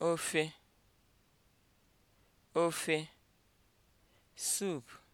ofe ofe soup